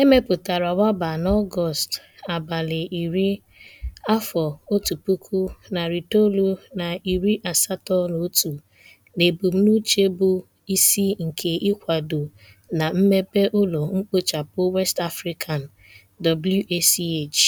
Emepụtara mepụtara n'Ọgọst abalị iri, afọ otu puku, narị itoolu na iri asatọ na otu n'ebumnuche bụ isi nke ịkwado na mmepe ụlọ mkpochapụ West African (WACH).